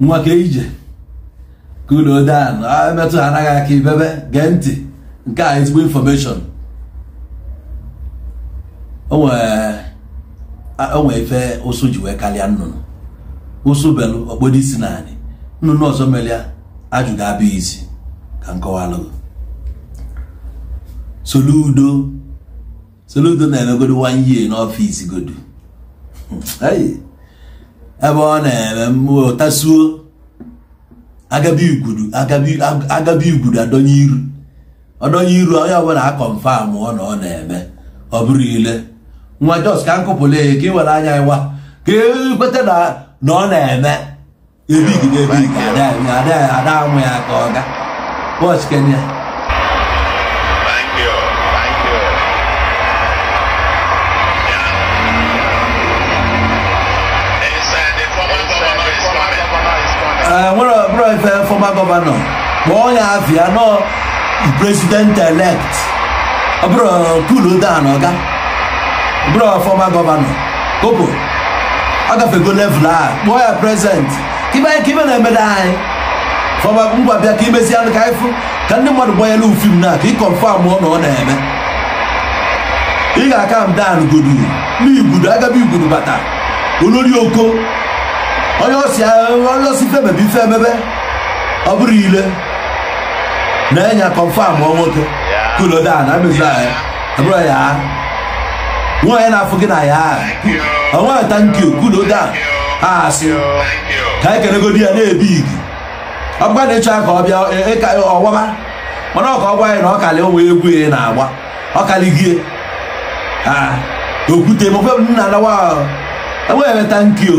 nwa ka ije ka ụlọ dan emetụ ha anaghị aka ibebe gee ntị nke a ezigbo infọmeshọn onwe ife ụsụ ji wee karịa nnụnụ ụsụ belụ okpodo isi naanị nnụnụ ọzọ mere ya abịa isi ka nkọwalụgo soludo soludo na-emegodo one year n'ọfịs godu ebe ọ na-eme mmụọ tasuo agabi igwuru adọnye iru ọdọnye iru onye ọbụla akọmfam ọ na ọ na-eme ọ bụrụ ile nwa jos ka nkụpụla ya ka were anya ịwa ka ekweta na ọ na-eme ebigide ebigide ada amụ ya ka ọ ga Eh, nwere ọbụrụ ife fọma gọvanọ ọ ya afia nọ president elect kulu dan ọga fọma gọvanọ kopo a ya prezident kibe ka ibe na emeda anyị fọma ngwa bịa ka imezie anụ ka anyị ka ndị mmadụ gbanyela ufim na ka ịkọnfam na ọ na-eme ị ga-aka m dan godu n'igudu bata olori oko onye osi onye osi femebe ife emebe ọ bụrụ ile na-enya kọnfam nwoke kulodan amezaya abụrụ ya nwaanyị na-afụ gị na ya onwe tankyu kulodan a asị ka anyị kelegodi ya na-ebi igi ọgba na-eche ka ọ bịa e, e, ọwaba mana ọka ọ anyị na ọ kalị nwa egwu ya e na-agba ọ kalịgie okwute nna anawa enweghị tankio.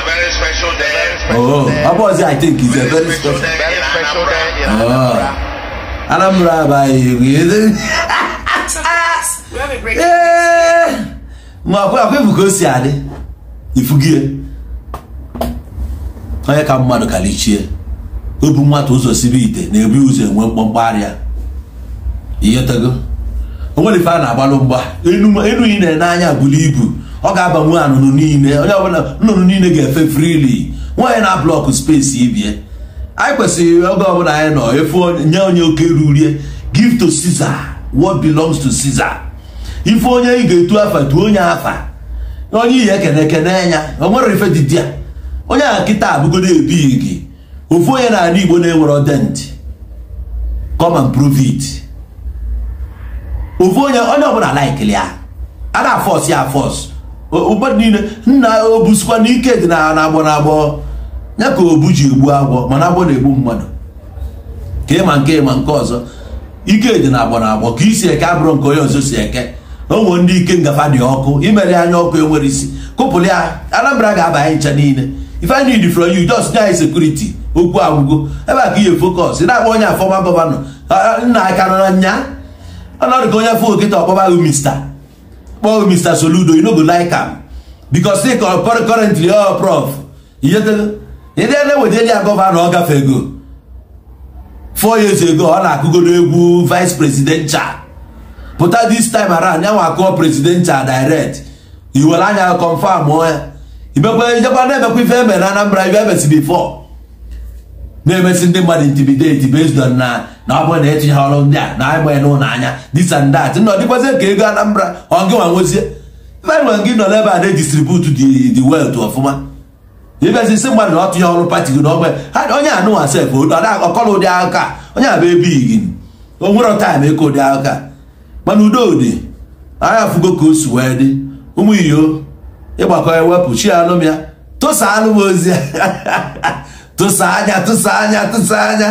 Ọ very special day. Oh, Abozi, I think it's a very special day. Very in Anambra. by you. ka o si adị ifugie onye ka mmadụ kalichie obu nwata ụzọ sibe ite na-ebu ụzọ enwe mkpọmkpọ arịa ihe o nwere ife a na-agbalụ mgba enu ị na-ene anya buru ibu ọ ga-aba nwe anụnụ niile onye ọbụla nnụnụ niile ga-efe frili nwaanyị na blọkụ spesi ibie anyị kwesịrị oge ọbụla anyị nọ efe nye onye oke rurie give to Caesar what belongs to Caesar ife onye ị ga-etu afa tuo onye afa onye ihe ekene ekene ya o nwere ife didi onye a nkịta abụgodo ebighị gị ofu onye na-ala Igbo na-enwere ọdentị come and prove it ofu onye onye ọbụla laikili ya a na-afọs ya afọs ụgbọ niile nna o busikwa na ike dị na agbọ na agbọ ya ka obu ji egbu agwọ mana agbọ na-egbu mmadụ ka ịma nke ịma nke ọzọ ike dị na agbọ na agbọ ka isi eke abụrụ nke onye ọzọ si eke onwe ndị ike ngafa dị ọkụ imere anya ọkụ enwere isi kụpụrụ ya Anambra ga-aba anyị ncha niile if I need from you just nye anyị sekuriti okwu agwụgo ebe a ka ihe fokọs na-agba onye afọma gọvanọ nna aka nọ na nya ka onye afọ oketa ọkpọba ahụ mista kpọọ mr soludo you no go like am because say currently all prof ịdịele wedeli ya gọvanọ ọ ego. four years ago ọ na-akụgodo egwu vice presidential pụta this time around ya nwa akụọ presidential direct iwere anya confam ya imekwa ejekwa na-emekwa ife emere na Anambra ibe emesi before na-emesi ndị mmadụ intimidate based on na na ọ bụrụ na etinye ha ọrụ ndị a na agbaghị n'ụlọ anya this and that nọ dịkwazị ka ego Anambra ọgị nwa nwezie mmadụ gị nọ n'ebe a na-edistribute the wealth ọfụma ibezi isi mmadụ na ọ tụnye ọrụ pati gị n'ọgbe ha onye anụnwa sef ọkọrọ ụdị aka onye abụ ebighị gị o nwere taịm ụdị aka mana udo dị anya fugo ka o si wee dị ụmụ iyo ịgbakọ ewepụ chi alụm ya tosa alụm ozi Тусаня, тусаня, тусаня.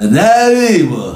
Не вімо.